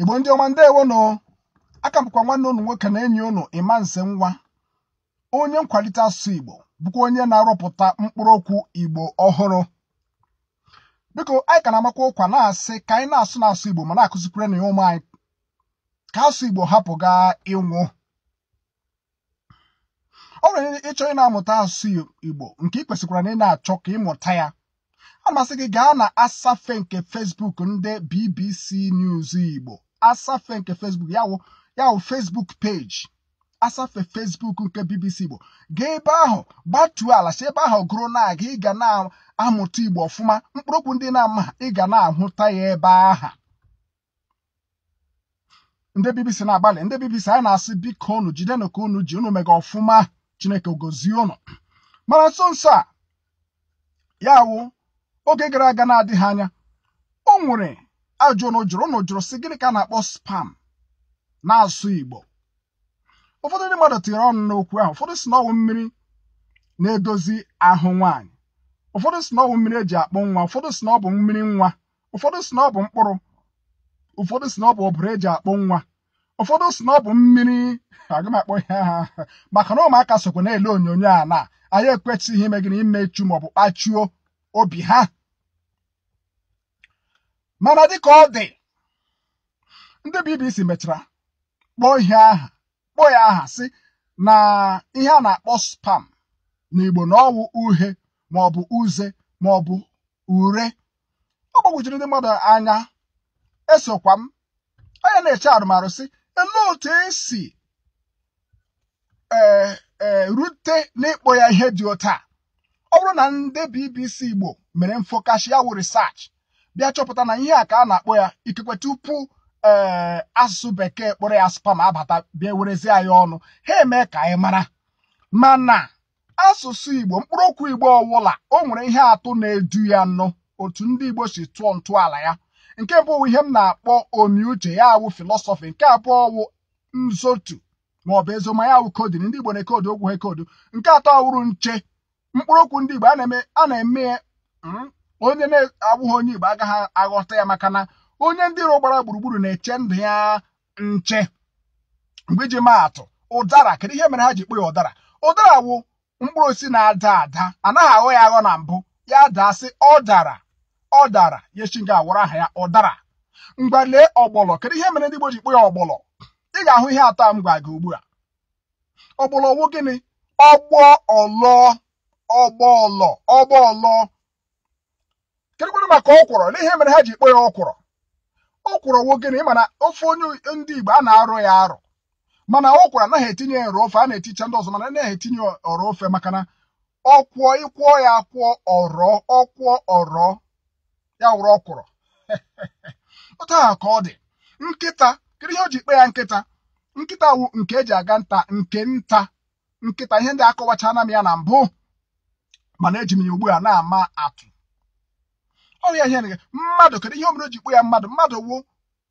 igbo ndị ọma ndewonụ aka m nwanne unu nwoke na enyi unu, Imanse Nwa onye nkwalite asụsụ igbo bụkwa onye na-arụpụta mkpụrụ okwu igbo ọhụrụ biko anyị ka na-amakwa ụkwa na-asị ka anyị na-asụ n'asụ igbo ma na-akụzikwere na ya ụmụ anyị ka asụ igbo hapụ gaa ịnwụ ọ nwere ịchọ ịna na-amụta asụsụ igbo nke ị kwesịkwara na ị na-achọ ka ịmụta ya a masị gị gaa na asafe nke Fesbuk ndị BBC News Igbo asafe nke Facebook yawụ yawụ Facebook page asafe Facebook nke BBC Igbo gaa ebe ahụ gbatuo ala si ebe ahụ gụrụ na aga ị ga na-amụta Igbo ọfụma mkpụrụokwu ndị na-ama ị ga na-ahụta ya ebe aha ndị BBC na-agbalị ndị BBC anyị na-asị biko unu Jide ka unu ji unu mega ọfụma Chineke gozie unu mana nso nso a ya oge gara aga na-adịghị anya o nwere ajụ na jụrụ na jụrụ sị gịnị ka a na-akpọ spam na-asụ Igbo ụfọdụ ndị mmadụ tinyere ọnụ n'okwu ahụ ụfọdụ si na ọwụ mmiri na-edozi ahụ nwaanyị ụfọdụ si na mmiri eji akpụ nwa ụfọdụ si na ọ bụ mmiri nwa ụfọdụ si na ọ bụ mkpụrụ ụfọdụ si na ọ bụ ọbụrụ eji akpụ nwa ụfọdụ si na ọ bụ mmiri aga ihe aha maka na ụmụaka sokwa na-ele onyonyo a na anyị ekwechighị ime gịnị imechu maọbụ kpachuo obi ha mana dịka ọ dị ndị BBC mechara kpọọ ihe aha kpọọ ya aha sị na ihe a na-akpọ spam n'Igbo na ọwụ uhe maọbụ uze maọbụ ure ọ gbagwojiri ndị mmadụ anya esokwa m onye na-eche arụmarụ sị elee otu esi erute eh, eh, n'ịkpọ ya ihe dị otu a ọ bụrụ na ndị BBC Igbo mere mfọkasị ya wụ research bịa chọpụta na ihe a ka a na-akpọ ya ikekwe tupu ee eh, asụsụ bekee kpọrọ ya spam abata bịa werezie anyị ọnụ ha emee ka anyị mara mana asụsụ Igbo okwu Igbo ọwụla o nwere ihe atụ na-edu ya nọ otu ndị Igbo si tụọ ntọala ya nke mbụ ihe m na-akpọ omiuche ya awụ filọsọfị nke abụọ wụ nzotu maọbụ ezoma ya awụ kodin ndị Igbo na-ekodu okwu ha ekodu nke atọ wụrụ nche okwu ndị Igbo a na-eme hmm, onye na-abụghị onye Igbo agaghị aghọta ya maka na onye ndị iro ụgbara gburugburu na-eche ndụ ya nche mgbe iji maa atụ ụdara kedu ihe mere ha ji kpọ ya ụdara ụdara wụ mkpụrụ osisi na-ada ada anaghị aghọ ya aghọ na mbụ ya daa sị, ọ dara ọ dara yechi nga awụrụ aha ya ụdara mgba lee ọgbọlọ kedu ihe mere ndị Igbo ji kpọ ya ọgbọlọ ị ga-ahụ ihe atọ m gwa gị ugbu a ọgbọlọ wụ gịnị ọgbọ ọlọ ọgbọ ọlọ ọgbọ ọlọ kedụkwanụ maka ọkwụrọ n'ihe mere ha ji kpọ ya ọkwụrọ ọkwụrọ wo gịnị na ofe onye ndị Igbo a na arụ ya arụ. mana ọkwụrọ anaghị etinye ya ọrụ ofe a na-eticha ndị ọzọ mana anaghị etinye ọrụ ofe maka na ọkwụọ ịkwụọ ya akwụọ ọrọ ọkwụọ ọrọ ya wụrụ ọkwụrọ otu aha ka ọ dị nkịta kedu ihe o ji ikpe ya nkịta nkịta wụ nke eji aga nta nke nta nkịta ihe ndị akọwachana m ya na mbụ mana eji m ya ugbu a na-ama atụ ya ihe nịga mmadụ kedu ihe omere ji kpọ ya mmadụ mmadụ wo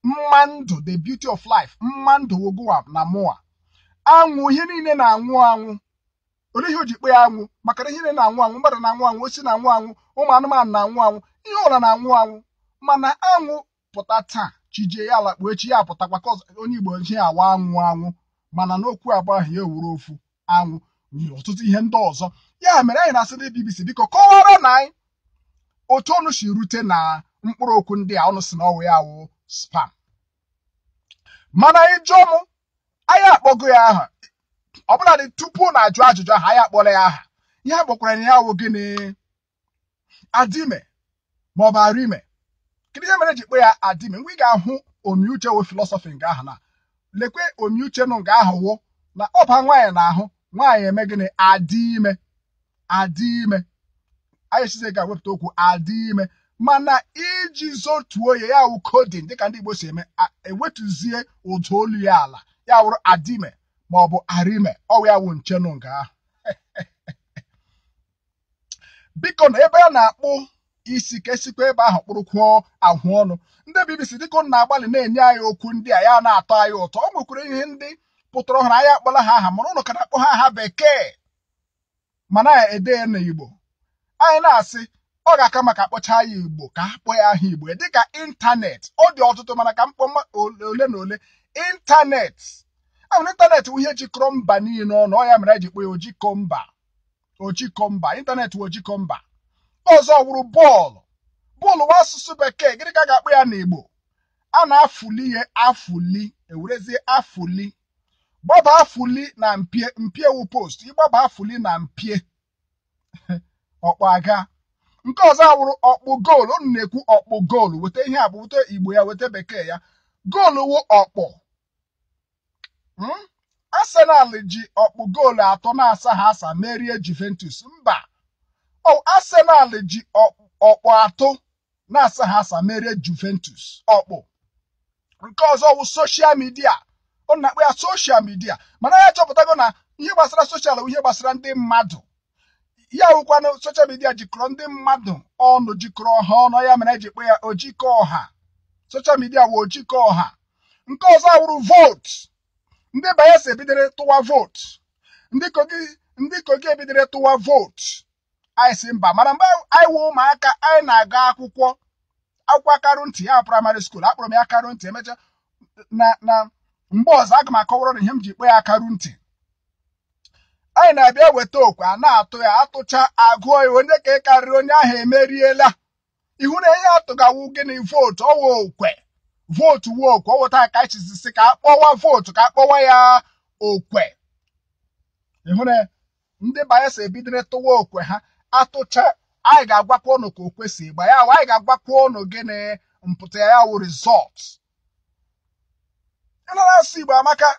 mma ndụ the beauty of life mma ndụ wo goa na mụa anwụ ihe niile na-anwụ anwụ Olee ihe o ji kpọ ya anwụ maka ihe niile na-anwụ anwụ mmadụ na-anwụ anwụ osi na-anwụ anwụ ụmụ anụmanụ na-anwụ anwụ ihe ụra na-anwụ anwụ mana anwụ pụta taa chijie ya ala echi ya pụtakwa ka onye Igbo ji ya awa anwụ anwụ mana n'okwu abụ ahụ ya ewuru ofu anwụ nye ọtụtụ ihe ndị ọzọ ya mere anyị na-asị ndị biko kọwara na anyị otu ọnụ si rute na mkpụrụ okwu ndị a ọnụ si na ọwụ ya wụ spam mana ịjụ m anyị akpọgo ya aha ọbụladị tupu na ajụ ajụjụ ahụ anyị akpọla ya aha ihe akpọkwara na ya wụ gịnị adime maọbụ arime kedu ihe mere e ji kpọ ya adime mgbe ị ga-ahụ omiuche wụ filọsọfị nga ahụ na lekwe omiuche nụ nga ahụ wụ na ọba nwaanyị na ahụ nwaanyị eme gịnị adị ime adị ime ayesize ga-ewepụta okwu adị ime mana iji zotuo ya ya wụ kodin dịka ndị Igbo si eme ewetụzie ụda olu ya ala ya wụrụ adime ma ọ bụ arime ọwụ ya wụ nchenu nga ahụ biko na ebe a na-akpụ isi kesikwa ebe ahụ kpụrụkwuo ahụ ọnụ ndị BBC dịka ụnụ na-agbalị na-enye anyị okwu ndị a ya na-atọ anyị ụtọ ọ nwekwara ihe ndị pụtara ọhụrụ anyị akpọla ha aha mana ụnụ ka na-akpọ ha aha bekee mana ya ede ya n'Igbo anyị na-asị ọ ga-aka maka akpọcha ya igbo ka a kpọọ ya aha igbo dịka ịntanetị ọ dị ọtụtụ mana ka mkpọ ole na ole ịntanetị ahụrụ ịntanetị bụ ihe jikọrọ mba niile ọnụ ọ ya mere eji kpọọ ya ojikọ mba ojikọ mba ịntanetị bụ ojikọ mba ọzọ wụrụ bọọlụ bọọlụ nwa asụsụ bekee gịnị ka a ga-akpọ ya igbo a na-afụli ya afụli ewerezie afụli gbaba afụli na mpie mpie wu post ịgbaba afụli na mpie ọkpọ aga nke ọzọ awụrụ ọkpụ goolu unu na-ekwu ọkpụ goolu weta ihe a bụ weta igbo ya weta bekee ya goolu wụ ọkpụ. Hmm? Arsenal ji ọkpụ goolu atọ na-asa ha asa merie Juventus mba Arsenal ji ọkpụ atọ na-asa ha asa merie Juventus ọkpụ nke ọzọ wụ soshal midia ọ na akpụ ya soshal midia mana ya chọpụtago na ihe gbasara soshal ihe gbasara ndị mmadụ ya wụkwana soshal midia jikọrọ ndị mmadụ ọnụ jikọrọ ha ọnụ ya mere eji kpọ ya ojikọ ọha soshal midia wụ ojikọ ọha nke ọzọ awụrụ vootu ndị bayelsa ebidere tụwa vootu ndị kogi ndị kogi tụwa vootu anyị si mba mana mgbe anyị wụ ụmụaka anyị na-aga akwụkwọ akwụkwọ akarụ ntị ya praịmarị skuul akpọrọ m ya akarụ ntị emechaa na na mgbe ọzọ aga m akọwara na ihe m ji kpọ ya akarụ ntị anyị na-abịa weta okwe a na-atụ ya atụcha agụọ ya onye ka ị karịrị onye ahụ emeriela ihu na ihe atụgawu gịnị vootu ọwa okwe vootu wuo okwe ọwụta aka chizisi ka akpọwa vootu ka akpọwa ya okwe ịhụ na ndị bayelsa ebidoro tụwa okwe ha atụcha anyị ga-agwakwa ụnụ ka okwe si ịgba ya anyị ga-agwakwa ụnụ gịnị mpụta ya wụ rizọt ịnara asụ igbo amaka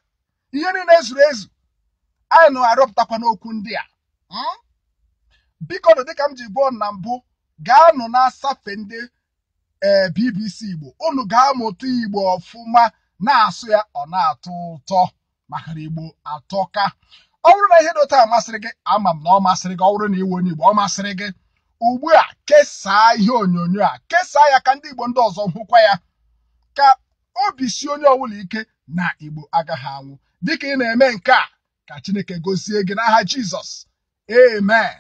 ihe niile zuru ezu anyị nọ arọpụtakwa n'okwu ndị a hmm? biko nụ dịka m ji gbuo na mbụ gaanụ na asafe ndị eh, BBC Igbo unu ga-amụta Igbo ọfụma na-asụ ya ọ na-atọ ụtọ maka Igbo atọka ọ bụrụ na ihe dị otu a masịrị gị ama m na ọ masịrị gị ọ bụrụ na iwu onye Igbo ọ masịrị gị ugbu a kesaa ihe onyonyo a kesaa ya ka ndị Igbo ndị ọzọ hụkwa ya ka obi si onye ọbụla ike na Igbo agaghị anwụ dịka ị na-eme nke a ka Chineke gosie gị n'aha Jizọs amen